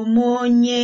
Abụ onye